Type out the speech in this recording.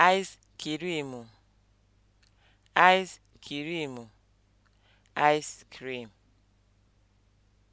ice kirimu ice kirimu ice cream